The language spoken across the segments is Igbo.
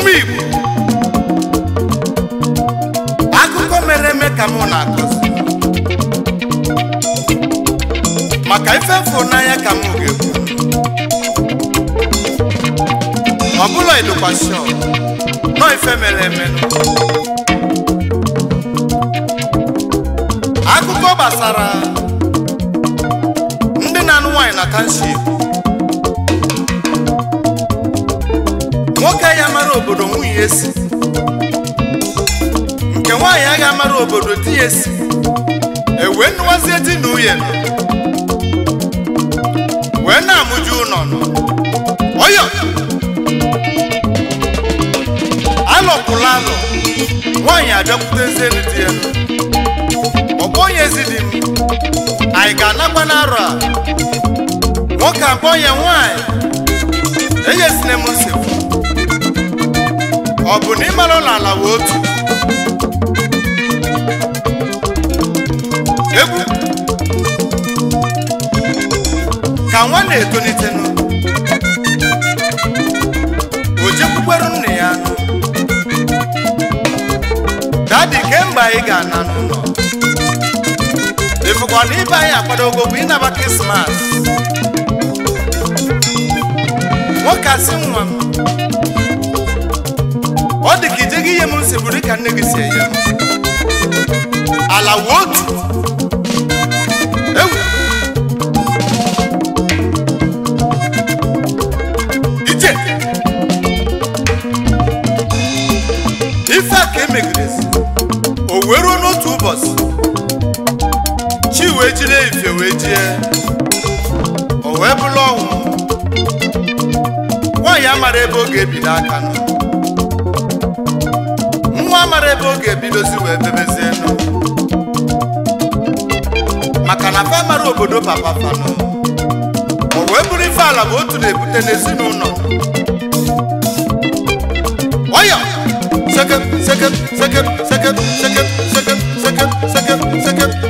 ọmụmụ Igbo akụkọ mere eme ka na-akọzi maka ife fụ n'anya ka m ga-ekwu bụla ịdụkwasị nọ ife mere eme akụkọ gbasara ndị na-anụ nwaanyị na kanship obodo nwunye nke nwaanyị agaghị amara obodo di ya esi ewee nụwazie di na nọ wee na-amụju ụlọ ọyọ alọpụla alọ nwaanyị abịakwutezie dị ya onye ezi dị m anyị ga-anakwa n'arọ a nwoke akpọnye nwaanyị enyezina na nsogbu ọ bụ na ịmara ụlọ ala wee otu egwu ka nwa na nọ. o jekwukwere nne ya dadi kemgbe anyị ga-ana n'ụlọ ịfụkwana ibe anyị akwadogo bụ ịnaba krismas nwoke asị nwa m ihe m nseburu ka nne gị si enye ala wotu ewu ije ife a ka emegideresi o wee ruo n'otu ụbọchị chi wee jide ife wee jie o wee bụrụ ọnwụ nwaanyị amara ebe ọ ga aka nọ ebe ọ ga si wee bebezie nụ maka na fa mara obodo papa fanụ o wee bụrụ ife ala bụ otu na-ebute n'ezinụlọ ọya sekep sekep sekep sekep sekep sekep sekep sekep sekep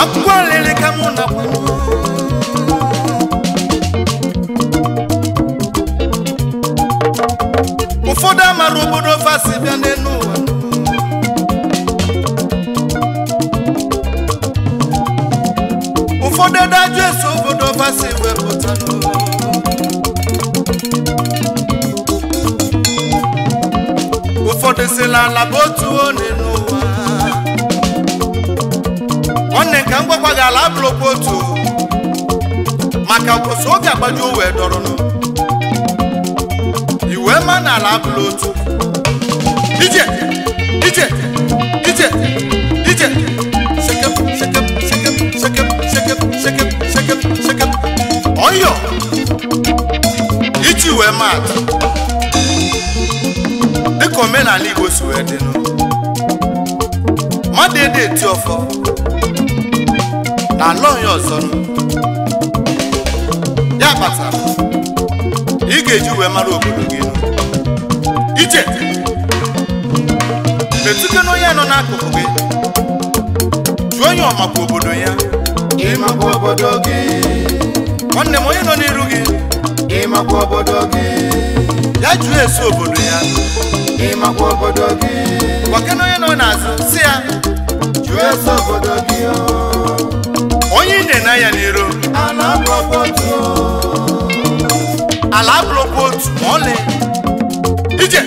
A pwen lè lè kamoun apwen nou Ou fò de marou boudou fasi vennen nou anou Ou fò de danjè sou boudou fasi vennen nou anou Ou fò de selan la bòtou anou ka m ala abụrụkwa otu maka mposi oge agbaju wee dọrọnụ iwe ma na ala abụrụ otu ije ije ije ije sekep iji wee ma dịka omenala Igbo si wee dịnụ mmadụ ede eti ọfọ na alụ ya ọzọ ya kpatara ị ga-eji uwe mara obodo gị ije metụta na onye nọ n'akụkụ gị jụọ onye ọmakwa obodo ya ịmakwa obodo gị nwanne m onye nọ n'iru gị ịmakwa obodo gị ya jụọ eso obodo ya ịmakwa obodo gị gwakena onye nọ n'azụ si ya jụọ eso obodo gị na ya n'iro ala abụrụkwa otu ma ọlị ije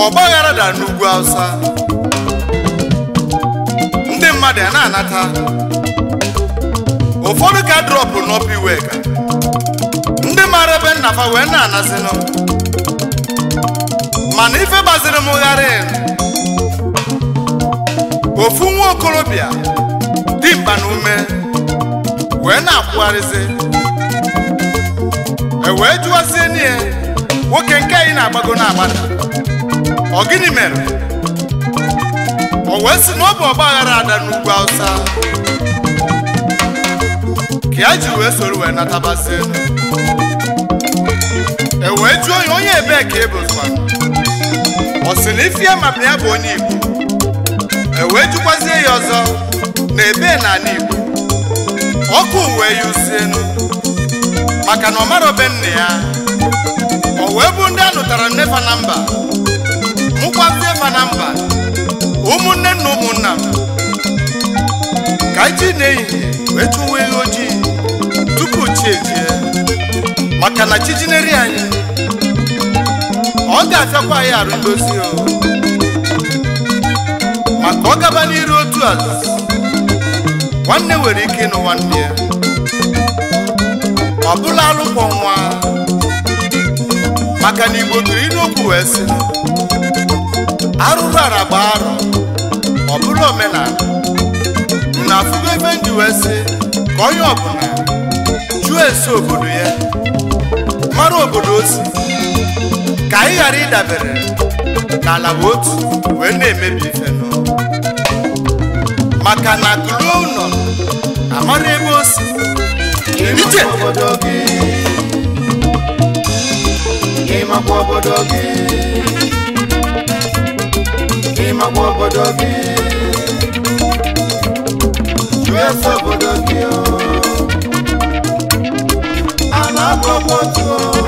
ka ọgba aghara dara n'ugwu ndị mmadụ a na-anata ụfọdụ ka drọpụ n'ọpụ iwe ka ndị maara ebe nnafa wee na-anazinụ mana ife gbaziri m ghara ofu nwa okorobịa dimkpa na ume wee na-akwụgharịzi e wee jụwazie n'ihe nwoke nke anyị na-agbago na-agbada ọ gịnị mere o wee sị na ọ bụ ọgba aghara ada n'ugwu awụsa. ka ya e ji wee soro wee natabazie e wee jụọ onye onye ebee ka ebozikwana ọ sị na ife ya ya bụ onye Igbo e wee jụkwazie ya ọzọ na ebee na ala Igbo ọkụ wee yuzienu maka na ọ mara obe nne ya o wee bụ ndị a nụtara nnefa na mba ma na mba ụmụnne na ụmụnna ka anyị ji n'ehihie wee chụwa ehi ojii tupu chi ejie maka na chi anyị ọ ga achakwa anyị arụ ndozi o maka ọ gaba n'iru otu ala nwanne nwere ike ịnụ nwanne ya ọ bụla alụkwọ nwa maka na igbo tụrụ inokwu wee sị arụrụ gba arụ ọ bụrụ omenala na afụgo ebe ndị wee sị ka onye ọbụla jụọ esi obodo ya mara obodo o ka anyị ghara ịdabere n'ala otu wee na-emebi ife maka na kụlụo ụlọ amara ebe o si gị mama obodo gị US obodo gị ana akọkọ tụọ